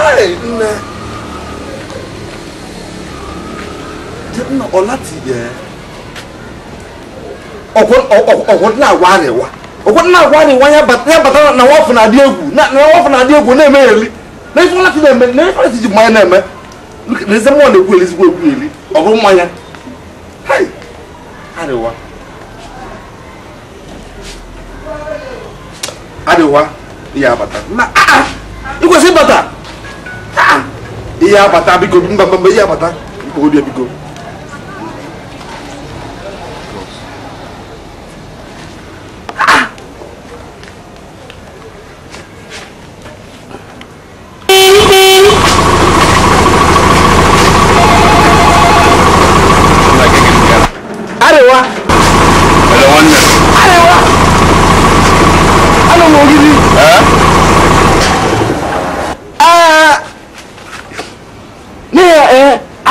nne nna ọláti yẹ agwa arịwa ọkwọdịna agwa arịwa ya bata na nwafọ na-adị egwu na nwafọ na-adị egwu na-eme eri na ife na-eme na ife ọláti ji mmanya na-eme na eze ya abata na ịkwesị bata. iya bata biko, ko ngba ngba iya bata o de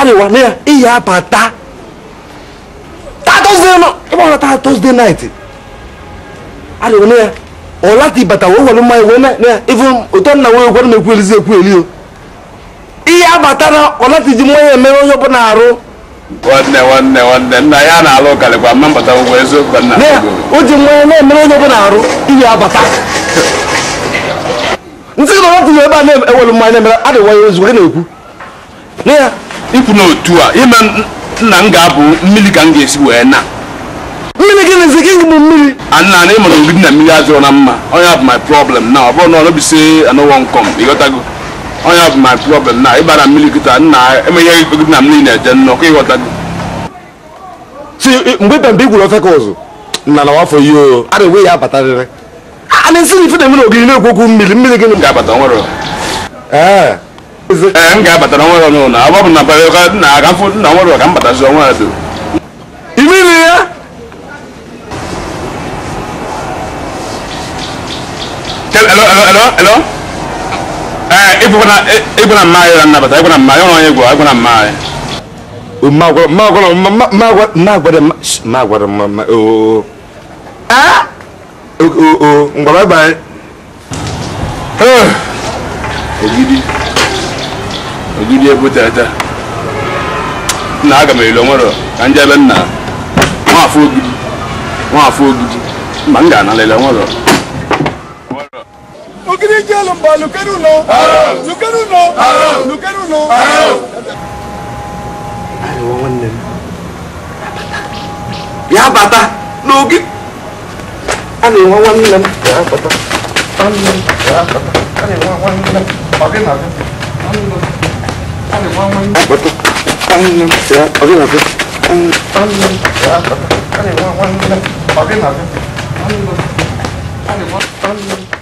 adịwara e e na e ya iyi abata ịgbara taa tọzde naịtị adịwara na ya ọ lati bata wee were mmanya wee na ya ife ụtọ nna na-ekwu elizi ekwu ekwueli o ihe abata na ọ lati ji mmanya emere onye ọbụla arụ nwanne nwanne nwanne nna ya na-alụ karịkwa mma mbata ụgwọ eziokwu nna o ji mmanya na-emere onye ọbụla arụ iyi abata nsị na ọ lati ji ebe a na-ewere mmanya na-emere adịwara ya ozugbo ha na-ekwu na ya ikwu otu a ime nna m ga-abụ mmiri ka m ga-esi wee na mmiri gị na-eze gị bụ mmiri anna na ịmụrụ ogidi na mmiri azụrụ na mma onye bụ my problem na ọ na ọ nọbise nkọm ịghọtago onye bụ my problem na ịbara mmiri kịta nna emeghe na mmiri na-eje ịghọtago mgbe igwuru ofe ka ụzụ nna na wafọ a na-enwe ya abatarịrị a na-esi na na-eme na ogiri na-ekwu mmiri mmiri ga-abata nwere ee E, m ga-abatara nwa ọnụ na agba bụ na bara na aga mfụ na nwere ka m batazi ọnwa ya imiri ya ịgbana mma anyị nnabata ịgbana mma ya onye gwa ịgbana mma anyị mma ogidi ojúdi ebu tẹ́tẹ́ nna aga m elo nwere ka ebe nna nwafọ ogidi ogidi mba m ga nwere ogidi bata n'oge a na-enwe nwanne m nwanne 你弯弯，我都。嗯，呀，跑偏了偏。当当呀，跑偏了偏。当那个，当。